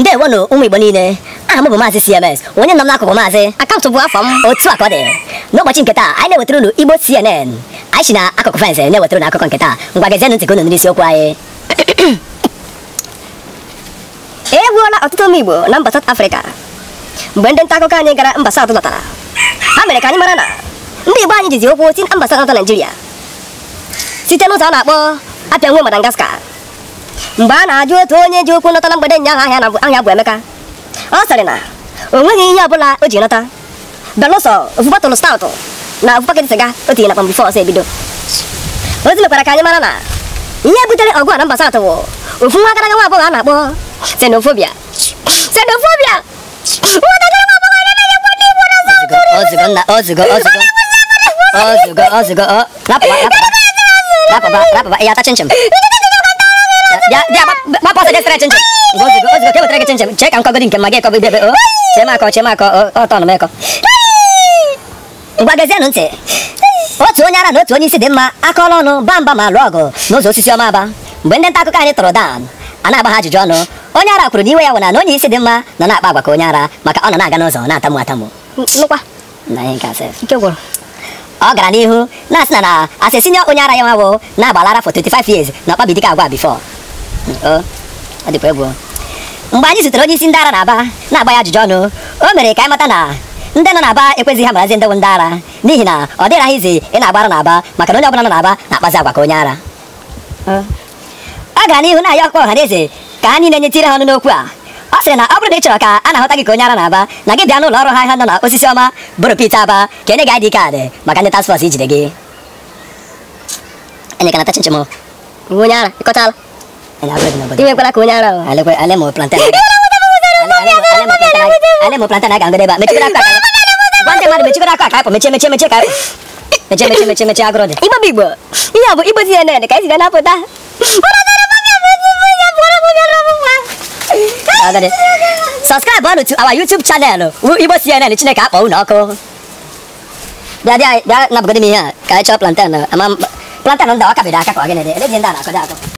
ndewonu ụmụ ah, igbo niile aha m bụ maazị cms onye nọ m n'akụkụ maazị akaụntụ bụ afọ m otu a ka ọ dị n'ụbọchị nke taa anyị na-ewetara unu igbo cnn anyị si na akụkụ fensị na-ewetara unu akụkọ nke taa ngwa gezienụ ntị ka unu n'isi okwu anyị e gbuola ọtụtụ ụmụ igbo na mba South Africa mgbe ndị nta akụkọ anyị gara mba South lọtara ha mere ka anyị mara na ndị igbo anyị jizi okwu si na mba South Naịjirịa site n'ụzọ a na-akpọ apịa nwe Madagascar mgbe a na-ajụ otu onye ji okwu nọtara mgbede nyaahụ ahịa na ahịa bụ Emeka ọ sịrị na o nweghị ihe ọbụla o ji nọta belụsọ ofu staụtụ na ofu siga sịga o tinye na kpamgbe ebido ozi mekwara ka anyị mara na ihe butere ọgụ a na mba satụ bụ ofu nwa agaraga nwa a na-akpọ xenofobia xenofobia ya ata ya gbapụ ọsọ jee sere chinchi ozugbo ka ewetara gị chinchi chee ka nkọgodi nke ma gị ekọba idebe o chemakọ chemakọ ọtọ nụ m ekọ ngwa gezienụ ntị otu onye ara na otu onye isi dị mma akọla ọnụ ba mba ma lụọ ọgụ n'ụzọ osisi ọma aba mgbe ndị nta akụkọ anyị tụrụ dan a na-agba ha ajụjụ ọnụ onye ara kwuru na iwe ya wụna na onye isi dị mma nọ na-akpa agwa ka onye ara maka ọ nọ na-aga n'ụzọ na-atamu atamu ọ gara n'ihu na-asị na na asị onye ara ya nwawo na-agbalara for 25 years na ọkpabidika agwa bifọ ọ dịkwa egwu mgbe anyị zutere onye isi ndị ara na aba na-agba ya ajụjụ ọnụ o mere ka anyị mata na ndị nọ aba ekwezighị ha marazi ndewo ndị ara n'ihi na ọ dịghị ahụ izi ị na agba ara na aba maka na onye ọbụla nọ na aba na-akpazi agwa ka onye ara ọ gara n'ihu na-ayọ ọkpọ ọha na eze ka ha niile nyetire ha ọnụ n'okwu a ọ sịrị na ọ bụrụ na ị chọrọ ka a na-ahụta gị ka onye ara na-aba na gị bịa n'ụlọ ọrụ ha ha nọ na osisi ọma bụrụ pete aba ka enye gị ID kaadị maka ndị task ijide gị enye ka na onye ara ịkọtala Dime con la cuñada. Ale, pues, ale, mo plantar. Ale, mo plantar na gango deba. Mechi kura kwa. Bande mari mechi kura kwa kwa. kwa. agro de. Ibo bigbo. Iya bo ibo si ene ne kai si gana Subscribe on to our YouTube channel. ka Dia dia dia na. kwa